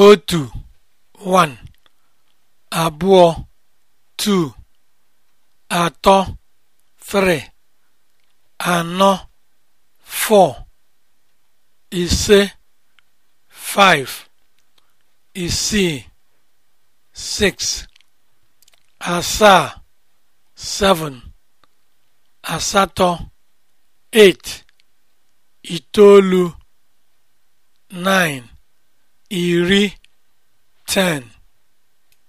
otu 1 abụọ tatọ 3 ano 4 ise5isi 6asaa 7 asatọ itoolu 9 iri (10)